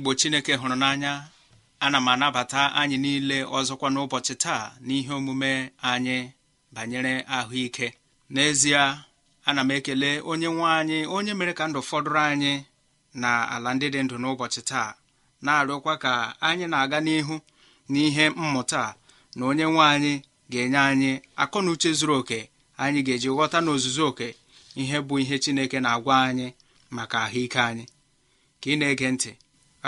igbo chineke hụrụ n'anya ana m anabata anyị niile ọzọkwa n'ụbọchị taa n'ihe omume anyị banyere ahụike n'ezie ana m ekele onye nwe anyị onye mere ka ndụ fọdụrụ anyị na ala ndị dị ndụ n'ụbọchị taa na-arịọkwa ka anyị na-aga n'ihu n'ihe mmụta na onye nwe anyị ga-enye anyị akọ na uche zuru oke anyị ga-eji ghọta n'ozuzu oke ihe bụ ihe chineke na-agwa anyị maka ahụike anyị ka ị na-ege ntị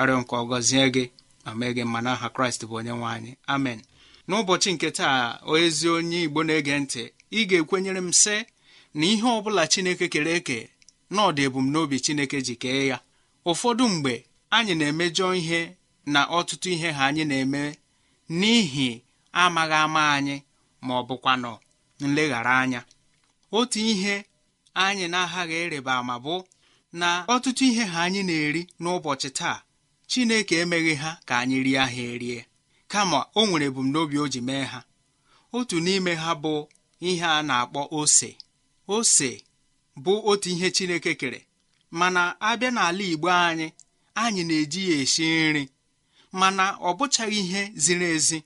arịọ nke ọgọzie gị ma mee gị mma n'aha kraịst bụ onye nwe anyị amen n'ụbọchị nke taa ezi onye igbo na-ege ntị ị ga-ekwenyere m sị na ihe ọ bụla chineke kere eke na ọdị ebumnobi chineke ji kee ya ụfọdụ mgbe anyị na-emejọ ihe na ọtụtụ ihe ha anyị na-eme n'ihi amaghị ama anyị ma ọ bụkwanụ nleghara anya otu ihe anyị na-aghaghị ịrịba ma bụ na ọtụtụ ihe ha anyị na-eri n'ụbọchị taa chineke emeghị ha ka anyị rie ha erie kama o nwere ebumnobi o ji mee ha otu n'ime ha bụ ihe a na-akpọ ose ose bụ otu ihe chineke kere mana abịa n'ala igbo anyị anyị na-eji ya esi nri mana ọ bụchaghị ihe ziri ezi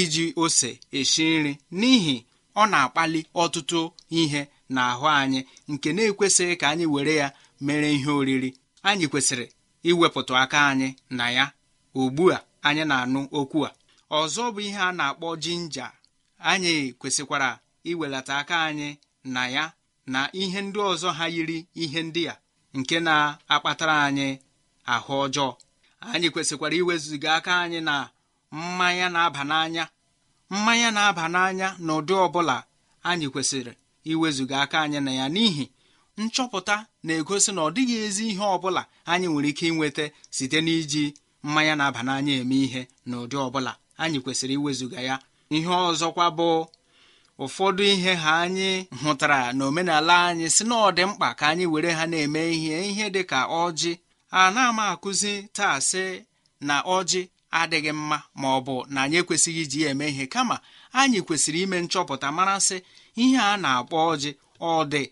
iji ose esi nri n'ihi ọ na-akpali ọtụtụ ihe n'ahụ anyị nke na-ekwesịghị ka anyị were ya mere ihe oriri anyị kwesịrị iwepụta aka anyị na ya ugbu a anyị na-anụ okwu a ọzọ bụ ihe a na-akpọ jinja anyị kwesịkwara iwelata aka anyị na ya na ihe ndị ọzọ ha yiri ihe ndị a nke na-akpatara anyị ahụ ọjọọ anyị kwesịkwara iwezụga aka anyị na mmanya na-aba n'anya mmanya na-aba n'anya na ụdị ọbụla anyị kwesịrị iwezụga aka anyị na ya n'ihi nchọpụta na-egosi na ọ dịghị ezi ihe ọ bụla anyị nwere ike inweta site n'iji mmanya na-aba n'anya eme ihe na ụdị ọbụla anyị kwesịrị iwezuga ya ihe ọzọkwa bụ ụfọdụ ihe ha anyị hụtara na omenala anyị si na ọ dị mkpa ka anyị were ha na-eme ihe ihe dị ka ọjị a na-ama akụzi taa sị na ọjị adịghị mma ma ọ bụ na anyị ekwesịghị iji ya eme ihe kama anyị kwesịrị ime nchọpụta mara sị ihe a na-akpọ ọjị ọ dị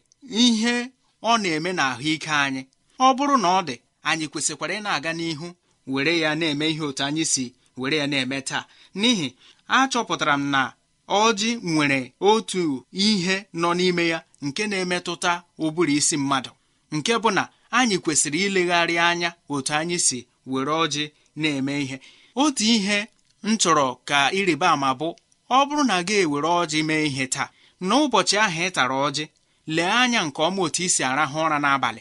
ihe ọ na-eme na ahụike anyị ọ bụrụ na ọ dị anyị kwesịkwara ị na-aga n'ihu were ya na-eme ihe otu anyị si were ya na-eme taa n'ihi achọpụtara m na ọjị nwere otu ihe nọ n'ime ya nke na-emetụta ụbụrụ isi mmadụ nke bụ na anyị kwesịrị ilegharị anya otu anyị si were ọjị na-eme ihe otu ihe m chọrọ ka ịrịba ama bụ ọ bụrụ na gị ewere ọjị mee ihe taa n'ụbọchị ahụ ị tara ọjị lee anya nke ọma otu isi arahụ ụra n'abalị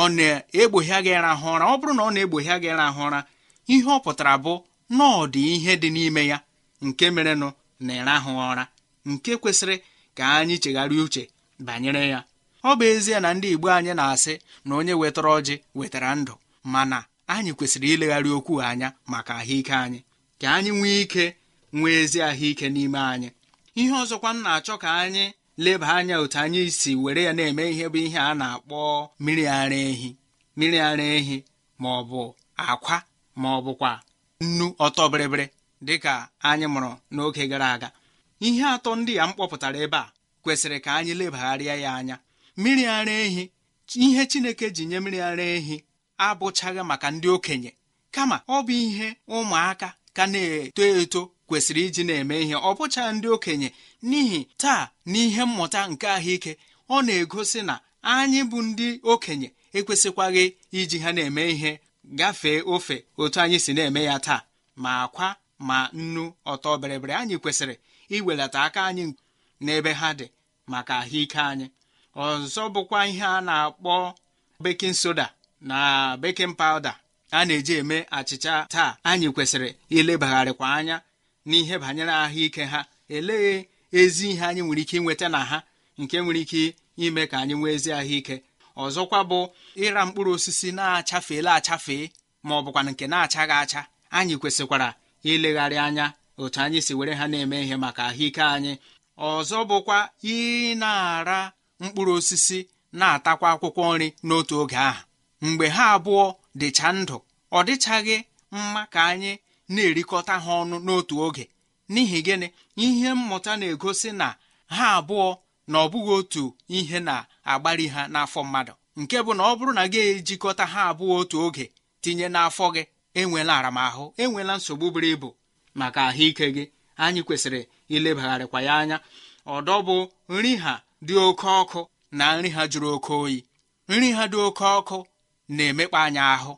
ọ na-egboghịa aga ịrahụ ụra ọ bụrụ na ọ na-egboghịa gị ịrahụ ụra ihe ọ pụtara bụ na ọ dị ihe dị n'ime ya nke merenụ na ịrahụ ụra nke kwesịrị ka anyị chegharịa uche banyere ya ọ bụ ezie na ndị Igbo anyị na-asị na onye wetara ọjị wetara ndụ mana anyị kwesịrị ilegharị okwu anya maka ahụike anyị ka anyị nwee ike nwee ezi ahụike n'ime anyị ihe ọzọkwa m na-achọ ka anyị leba anya otu anyị si were ya na-eme ihe bụ ihe a na-akpọ mmiri ara ehi mmiri ara ehi ma ọ bụ akwa ma ọ bụkwa nnu ọtọbịrịbịrị dịka anyị mụrụ n'oge gara aga ihe atọ ndị a m kpọpụtara ebe a kwesịrị ka anyị lebagharịa ya anya mmiri ara ehi ihe chineke ji nye mmiri ara ehi abụchaghị maka ndị okenye kama ọ bụ ihe ụmụaka ka na-eto eto kwesịrị iji na-eme ihe ọ bụcha ndị okenye n'ihi taa n'ihe mmụta nke ahụike ọ na-egosi na anyị bụ ndị okenye ekwesịkwaghị iji ha na-eme ihe gafee ofe otu anyị si na-eme ya taa ma akwa ma nnu ọtọ bịrịbịrị anyị kwesịrị iwelata aka anyị n'ebe ha dị maka ahụike anyị ọzọ bụkwa ihe a na-akpọ bekin soda na bekin pawuda a na-eji eme achịcha taa anyị kwesịrị ilebagharịkwa anya n'ihe banyere ahụike ha elee ezi ihe anyị nwere ike inweta na ha nke nwere ike ime ka anyị nwee ezi ahụike ọzọkwa bụ ịra mkpụrụ osisi na-achafeela achafee ma ọ bụkwa nke na-achaghị acha anyị kwesịkwara ilegharị anya otu anyị si were ha na-eme ihe maka ahụike anyị ọzọ bụkwa ị na-ara mkpụrụ osisi na-atakwa akwụkwọ nri n'otu oge ahụ mgbe ha abụọ dịcha ndụ ọ dịchaghị mma ka anyị na-erikọta ha ọnụ n'otu oge n'ihi gịnị ihe mmụta na-egosi na ha abụọ na ọ bụghị otu ihe na-agbari ha n'afọ mmadụ nke bụ na ọ bụrụ na gị ejikọta ha abụọ otu oge tinye n'afọ gị enwela aramahụ enwela nsogbu buru ibu maka ahụike gị anyị kwesịrị ilebagharịkwa ya anya ọdọ bụ nri ha dị oke ọkụ na nri ha jụrụ oke oyi nri ha dị oke ọkụ na-emekpa anyị ahụ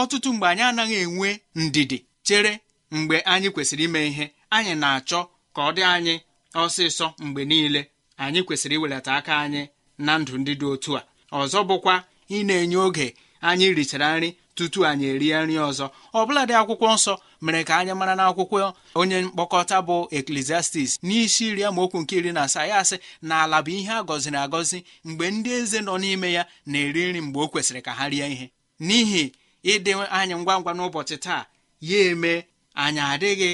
ọtụtụ mgbe anyị anaghị enwe ndidi chere mgbe anyị kwesịrị ime ihe anyị na-achọ ka ọ dị anyị ọsịsọ mgbe niile anyị kwesịrị iwelata aka anyị na ndụ ndị dị otu a ọzọ bụkwa ị na-enye oge anyị richara nri tutu anyị erie nri ọzọ ọbụladị dị akwụkwọ nsọ mere ka anyị mara n'akwụkwọ onye mkpokọta bụ eklesiastis n'isi iri amaokwu nke iri na asaa ya asị na ala bụ ihe a gọziri agọzi mgbe ndị eze nọ n'ime ya na-eri nri mgbe o kwesịrị ka ha rie ihe n'ihi ịdị anyị ngwa ngwa n'ụbọchị taa ya eme anyị adịghị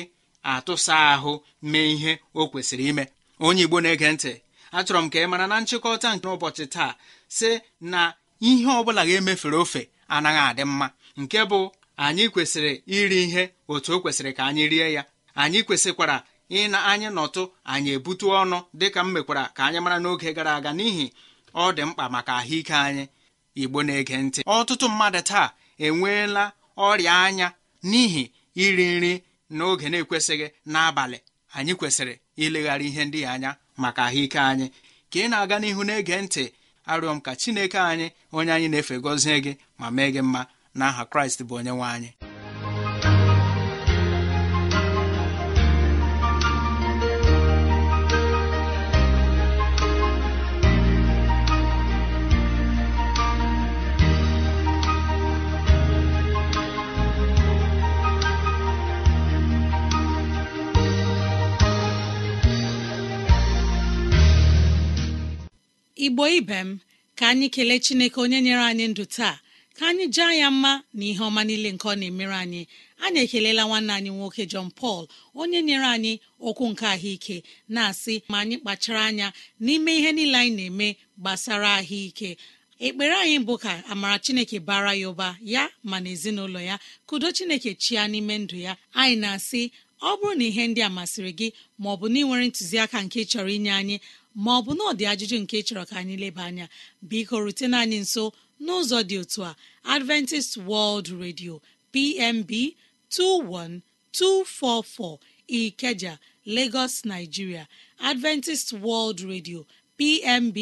atụsa ahụ mee ihe o kwesịrị ime onye Igbo na-ege ntị achọrọ m ka ị mara na nchịkọta nke ụbọchị taa sị na ihe ọ bụla ga-emefere ofe anaghị adị mma nke bụ anyị kwesịrị iri ihe otu o kwesịrị ka anyị rie ya anyị kwesịkwara ịna anyị nọtụ anyị ebute ọnụ dịka m mekwara ka anyị mara n'oge gara aga n'ihi ọ dị mkpa maka ahụike anyị igbo na-ege ntị ọtụtụ mmadụ taa enweela ọrịa anya n'ihi iri nri n'oge na-ekwesịghị n'abalị anyị kwesịrị ileghara ihe ndị anya maka ahụike anyị ka ị na-aga n'ihu na-ege ntị arịọ m ka chineke anyị onye anyị na-efe gọzie gị ma mee gị mma na n'aha kraịst bụ onye nwe anyị igbo ibe m ka anyị kelee chineke onye nyere anyị ndụ taa ka anyị jaa ya mma na ihe ọma niile nke ọ na-emere anyị anyị ekelela nwanne anyị nwoke John pal onye nyere anyị okwu nke ahụike na-asị ma anyị kpachara anya n'ime ihe niile anyị na-eme gbasara ahụike ekpere anyị bụ ka amara chineke bara ya ụba ya ma na ezinụlọ ya kudo chineke chia n'ime ndụ ya anyị na-asị ọ bụrụ na ihe ndị a masịrị gị ma ọ bụ na ị nwere ntụziaka nke chọrọ inye anyị ma ọ bụ na ọ ajụjụ nke chọrọ ka anyị leba anya biko rutena anyị nso n'ụzọ dị otu a adventist world radio pmb 21244 ikeja lagos nigeria adventist world radio pmb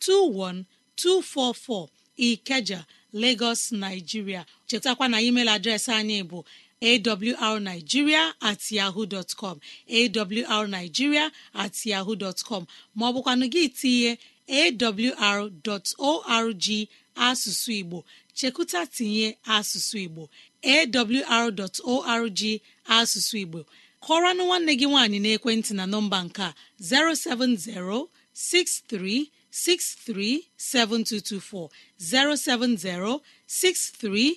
21244 ikeja lagos nigeria chetakwa na email adreesị anyị bụ awrnigeria at yahoo com awrnigeria at yahoo dọtcọm maọbụkwanụ gị tinye awr.org asụsụ igbo chekụta tinye asụsụ igbo awr.org asụsụ igbo kọrọnụ nwanne gị nwaanyị n'ekwentị na nọmba nke a 07063637224 07063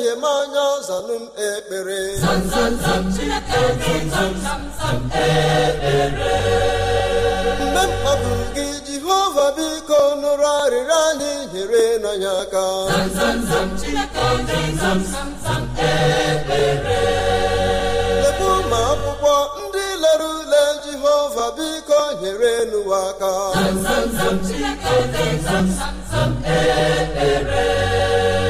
mmehie m anya zanụ m ekpere mgbe mkpapụ gị jehova biko nụrụ arịrịọ anyị nyere anyị aka ebe ụmụ akwụkwọ ndị lere ule jehova biko nyere n'ụwa aka ekpere.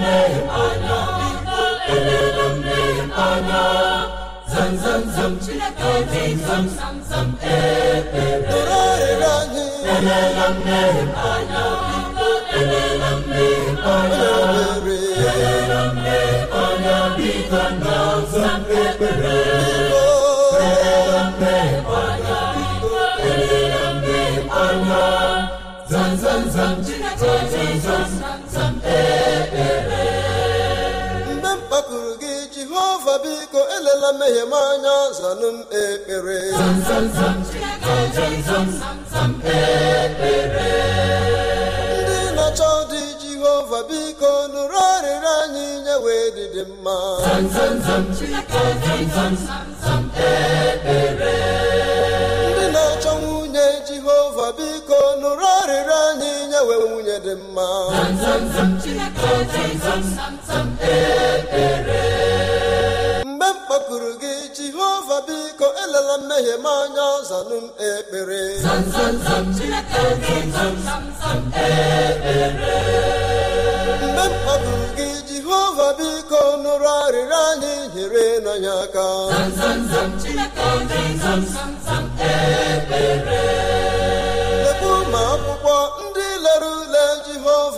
zam eze zam zam epe torarịrị anyị elela mmehie anya elela mmehie zam zam zam zam zam zam biko elela mmehie m anya zanụ m ekpere ndị na-achọ dị jehova biko nụrụ arịrị anyị nyewe dịdị mma ndị na-achọ nwunye jehova biko nụrụ arịrị anyị nyewe nwunye dị mma kpọkuru gị jehova biko elela mmehie m anya zanụ m ekpere mgbe m kpọkuru gị jehova biko nụrụ arịrịọ anyị nyere anyị aka ekpere.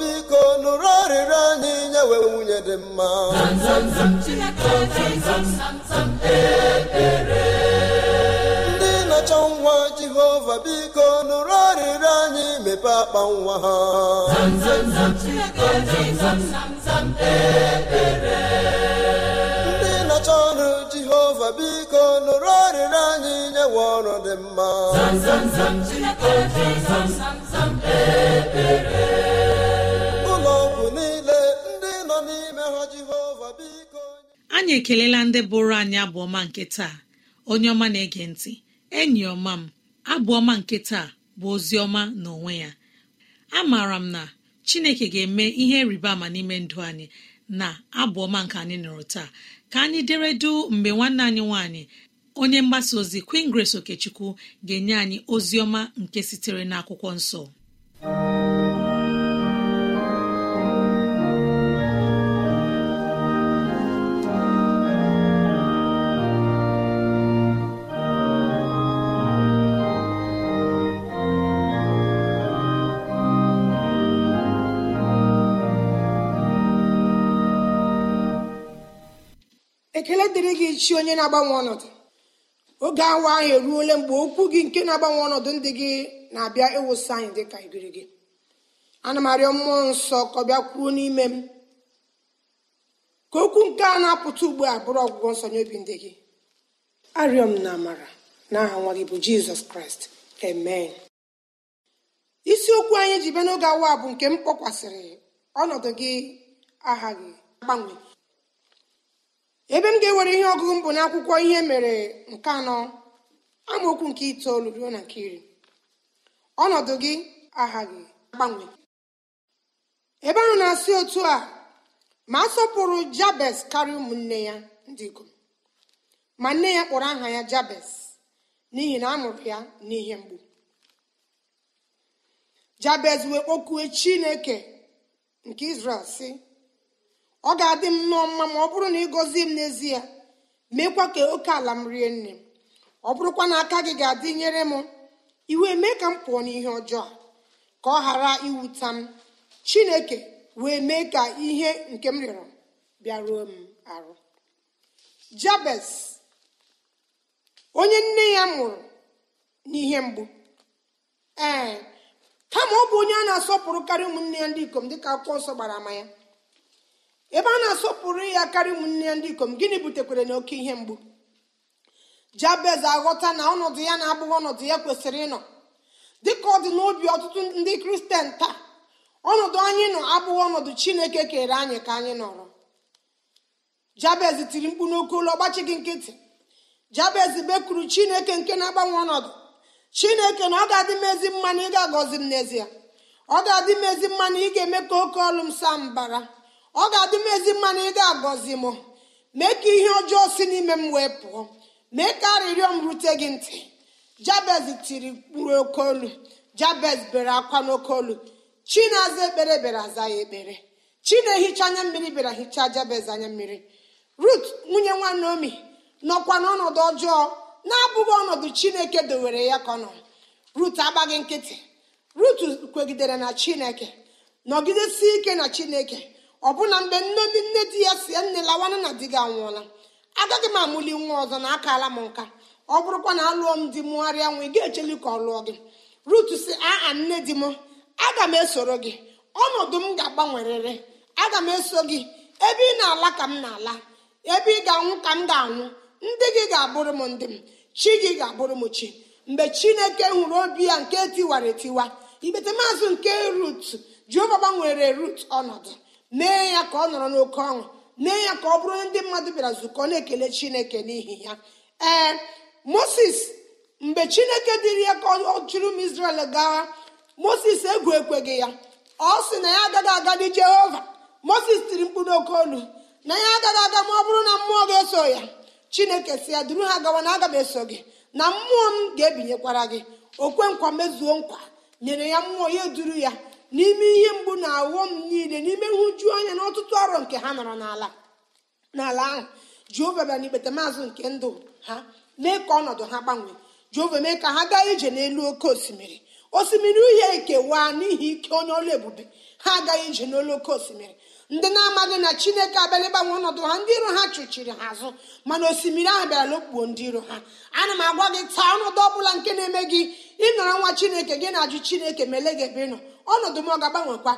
biko nụrụ arịrịọ anyị nyewe nwunye dị mma ndị na-achọ nwa jehova biko nụrụ arịrịọ anyị mepe akpa nwa ha ndị na ọrụ jehova biko nụrụ arịrịọ anyị nyewe ọrụ dị mma anyị ekelela ndị bụrụ anyị abụọma nke taa onye ọma na-ege ntị enyi ọma m abụọma nke taa bụ ozi ọma na onwe ya amaara m na chineke ga-eme ihe rịba ama n'ime ndụ anyị na abụọma nke anyị nụrụ taa ka anyị dere mgbe nwanne anyị nwanyị onye mgbasa ozi Queen Grace Okechukwu ga-enye anyị ozi ọma nke sitere n'akwụkwọ nsọ ekele dịrị gị chi onye na-agbanwe ọnọdụ oge awa ahụ eruole mgbe okwu gị nke na-agbanwe ọnọdụ ndị gị na-abịa ịwụsị anyị dị ka ibiri gị ana m arịọ mmụọ nsọ ka ọ bịa kwuo n'ime m ka okwu nke a na-apụta ugbu a bụrụ ọgwụgwọ nsọ nye obi ndị gị arịọ m na amara n'aha nwa gị bụ jizọs kraịst amen isiokwu anyị ji bịa n'oge awa bụ nke m kpọkwasịrị ọnọdụ gị aha gị agbanwe ebe m ga-ewere ihe ọgụgụ mbụ n'akwụkwọ ihe mere nke anọ amaokwu nke itoolu ruo na nke iri ọnọdụ gị aghaghi agbanwe ebe ahụ na-asị otu a ma a sọpụrụ jabes karịa ụmụnne ya ndị ikom ma nne ya kpọrọ aha ya jabes n'ihi na a ya n'ihe mgbu jabes wee kpọkue chineke nke israel sị ọ ga-adị m nnọọ mma ma ọ bụrụ na ị gọzie m n'ezie meekwa ka oke ala m rie nne m ọ bụrụkwa na aka gị ga-adị nyere m iwe mee ka m pụọ n'ihe ọjọọ ka ọ ghara iwuta m chineke wee mee ka ihe nke m rịọrọ bịaruo m arụ jabez onye nne ya mụrụ n'ihe mgbu ee kama ọ bụ onye a na-asọpụrụ ụmụnne ya ndị ikom dịka akwụkwọ nsọ gbara ama ya ebe a na-asọpụrụ ya karịa ụmụnne ndị ikom gịnị butekwere na oke ihe mgbu jabez aghọta na ọnọdụ ya na-abụghị ọnọdụ ya kwesịrị ịnọ dịka ọ dị n'obi ọtụtụ ndị kristian taa ọnọdụ anyị nọ abụghị ọnọdụ chineke kere anyị ka anyị nọrọ jabez tiri mkpu n'oke ụlọ ọgbachi gị nkịtị jabez bekuru chineke nke na-agbanwe ọnọdụ chineke na ọ ga-adị m ezi mma na agọzi m n'ezie ọ ga-adị m ezi mma ị ga-eme ka oke ọlụ m saa mbara ọ ga-adị m ezi mma na ị ga-agọzi m mee ka ihe ọjọọ si n'ime m wee pụọ mee ka arịrịọ m rute gị ntị jabez tiri mkpụrụ okeolu jabez bere akwa n'okeolu chinaza aza ekpere bere aza ya ekpere chi na-ehicha anya mmiri bịara hichaa jabez anya mmiri rut nwunye nwa naomi nọkwa n'ọnọdụ ọjọọ na-abụghị ọnọdụ chineke dowere ya ka ọ nọ rut agbaghị nkịtị rut kwegidere na chineke nọgidesi ike na chineke ọbụna mgbe nne ndị nne di ya si nne lawana na di gị anwụọla agaghị m amụli nwa ọzọ na akala m nka ọ bụrụkwa na alụọ m di mụgharịa nwa ị ga-echeli ka ọ lụọ gị rut si aa nne di m aga m esoro gị ọnọdụ m ga-agbanwerịrị aga m eso gị ebe ị na-ala ka m na-ala ebe ị ga-anwụ ka m ga-anwụ ndị gị ga-abụrụ m ndị m chi gị ga-abụrụ m chi mgbe chineke hụrụ obi ya nke tiwara etiwa igbete maazị nke rut jeova gbanwere rut ọnọdụ mee ya ka ọ nọrọ n'oke ọṅụ mee ya ka ọ bụrụ ndị mmadụ bịara nzukọ na-ekele chineke n'ihi ya ee moses mgbe chineke dịrị ya ka ọ chụrụ m israel gawa moses egwu ekweghị ya ọ sị na ya agaghị agadi jehova moses tiri mkpu n'oke olu na ya agaghị aga ma ọ bụrụ na mmụọ ga-eso ya chineke si ya duru ha gawa na aga m eso gị na mmụọ m ga-ebinyekwara gị okwe nkwa mezuo nkwa nyere ya mmụọ ya duru ya n'ime ihe mgbu na awọm niile n'ime nhụju anya na ọtụtụ ọrụ nke ha nọrọ n'ala n'ala ahụ jehova bịa n'ikpete maazụ nke ndụ ha mee ka ọnọdụ ha gbanwee jehova mee ka ha gaa ije n'elu oke osimiri osimiri uhie ekewaa n'ihi ike onye ọlụ ebube ha agaghị ije n'olu oke osimiri ndị na-amaghị na chineke abịala ịgbanwe ọnọdụ ha ndị iro ha chụchiri ha azụ mana osimiri ahụ bịara lụkpuo ndị iro ha ana m agwa gị taa ọnọdụ ọ bụla nke na-eme gị ịnọrọ nwa chineke gị na-ajụ chineke ma gị ebe ị nọ ọnọdụ m ọ ga-agbanwekwa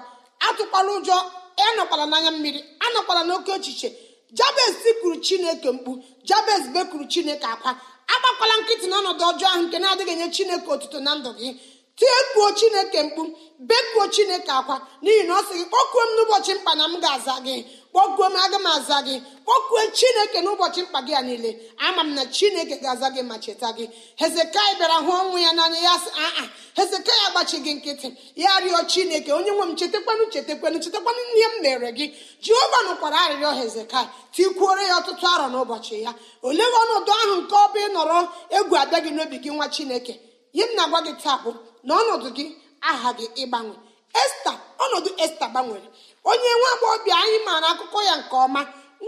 atụkwala ụjọ ịnọkwala n'anya mmiri anọkwala n'oke echiche jabes kwuru chineke mkpu jabes bekuru chineke akwa agbakwala nkịtị n'ọnọdụ ọjọọ ahụ nke na-adịghị nye chineke otuto na ndụ gị tiekwuo chineke mkpu bekuo chineke akwa n'ihi na ọ sị gị kpọkuo m n'ụbọchị mkpa na m ga-aza gị kpọkuo m aga m aza gị kpọkuo chineke n'ụbọchị mkpa gị a niile ama m na chineke ga-aza gị ma cheta gị hezekai bịara hụ ọnwụ ya n'anya ya sị aa hezekai agbachi gị nkịtị ya rịọ chineke onye nwe m chetakwanụ chetakwanụ chetakwanụ ihe m mere gị jehova nụkwara arịrịọ hezekai tikwuore ya ọtụtụ arọ n'ụbọchị ya olee ọnọdụ ahụ nke ọ bụ nọrọ egwu abịa gị n'obi gị nwa chineke ihe m na-agwa gị taa bụ na ọnọdụ gị aha gị ịgbanwe esta ọnọdụ esta gbanwere onye nwa agbọghọbịa anyị maara akụkọ ya nke ọma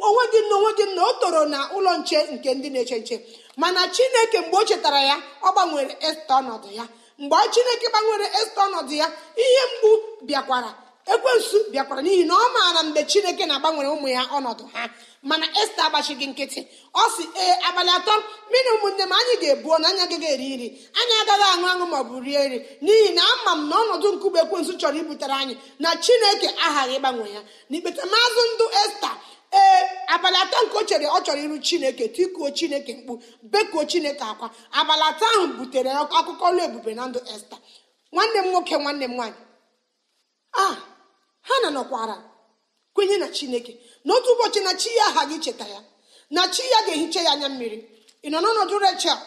onwe gị na onwe gị na o toro na ụlọ nche nke ndị na-eche nche mana chineke mgbe o chetara ya ọ gbanwere esta ọnọdụ ya mgbe chineke gbanwere esta ọnọdụ ya ihe mgbu bịakwara ekwensu bịakwara n'ihi na ọ maara mgbe chineke na-agbanwere ụmụ ya ọnọdụ ha mana esta agbachighị nkịtị ọ si ee abalị atọ mmiri ụmụnne m anyị ga-ebuo na anya agaghị eri nri anyị agaghị aṅụ aṅụ maọbụ rie nri n'ihi na ama m na ọnọdụ nkụgbe ekwensu chọrọ ibutere anyị na chineke aghaghị ịgbanwe ya na ikpetamazụ ndụ esta ee abalị atọ nke o chere ọ chọrọ iru chineke tikuo chineke mkpu bekuo chineke akwa abalị atọ ahụ butere akụkọ ọlụ ebube na ndụ esta nwanne m nwoke nwanne m nwaanyị a ah! ha na nọkwara kwenye na chineke n'otu ụbọchị na chi ya aha gị cheta ya na chi ya ga-ehicha ya anya mmiri ị nọ n'ọnọdụ rechel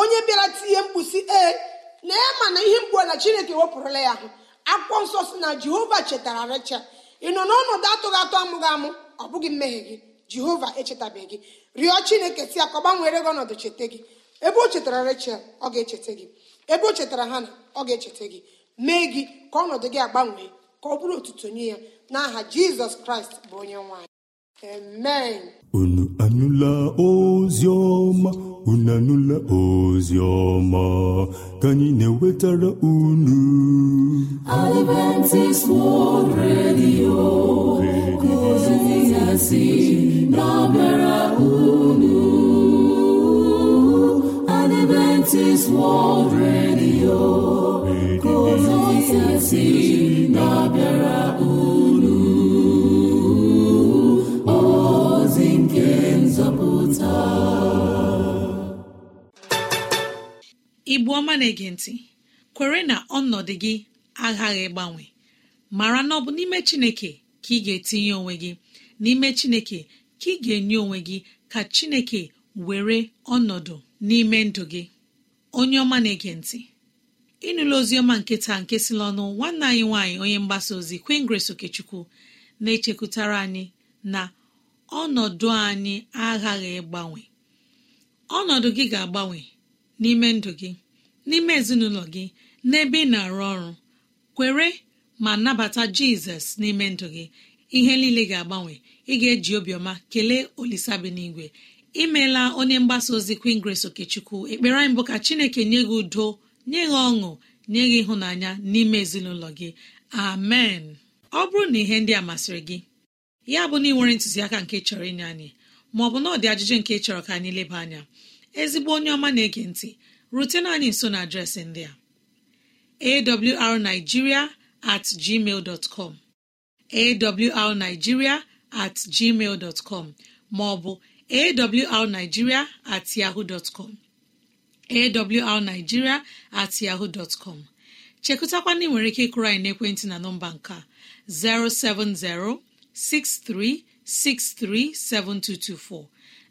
onye bịara tinye mkpusi e, ee na ya ma na ihe mgbu na chineke wepụrụla ya ahụ akpụkpọ nsọ si na jehova chetara rechel ị nọ n'ọnọdụ atụghị atụ amụghị amụ ọ bụghị mmehie gị jehova echetabeghị gị rịọ chineke si ka ọ gbanwere gị ọnọdụ cheta gị ebe o chetara rechel ọ ga-echeta gị ebe o chetara na ọ ga-echeta gị mee gị ka ọnọdụ gị agbanwee ka ọ bụrụ otuto nye ya n'aha jizọs kraịst bụ onye nwanyị amen unu anụla ozi ọma unu anụla ozi ọma ka anyị na-ewetara unu Adventist World Redio ka ozi si na-abịara unu Adventist World Radio igbu ọma na-ege ntị kwere na ọnọdụ gị aghaghị ịgbanwe mara na ọ bụ n'ime chineke ka ị ga-etinye onwe gị n'ime chineke ka ị ga-enye onwe gị ka chineke were ọnọdụ n'ime ndụ gị onye ọma na-ege ntị ịnụla oziọma nketa nke si n'ọnụ nwanne anyị nwaanyị onye mgbasa ozi queen grace okechukwu na-echekwutara anyị na ọnọdụ anyị aghaghị ịgbanwe ọnọdụ gị ga-agbanwe n'ime ndụ gị n'ime ezinụlọ gị n'ebe ị na-arụ ọrụ kwere ma nabata jizọs n'ime ndụ gị ihe niile ga-agbanwe ị ga-eji obiọma kelee olisabinigwe imeela onye mgbasa ozi queen grace okechukwu ekpere anyị bụ ka chineke nye gị udo nye gị ọṅụ nye gị ịhụnanya n'ime ezinụlọ gị amen ọ bụrụ na ihe ndị a masịrị gị ya bụ na ị ntụziaka nke chọrọ inye anyị maọbụ na ọ dị ajụjụ nke chọrọ ka anyị leba anya ezigbo onye ọma na-ege ntị rutena anyị nso na adreesị ndị a arigiria atgmal com at maọbụ at yahoo awrnigeria at yahoo dọtcom chekụtakwana ị nwere ike ịkụrụ anyị n'ekwentị na nọmba nke a 07063637224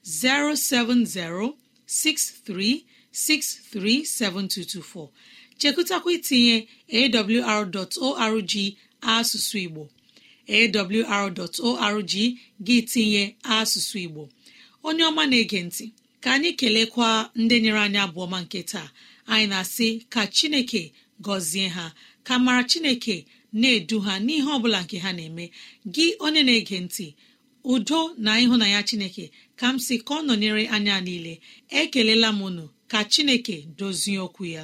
07063637224 chekụtakwa itinye awr.org asụsụ Igbo awr.org gị tinye asụsụ Igbo onye ọma na-ege ntị ka anyị kelekwa ndị nyere anyị abụọ ma nke taa anyị na-asị ka chineke gọzie ha ka mara chineke na-edu ha n'ihe ọ bụla nke ha na-eme gị onye na-ege ntị udo na ịhụnanya chineke ka m sị ka ọ nọnyere anya niile ekelela m unu ka chineke dozie okwu ya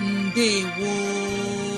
ndewo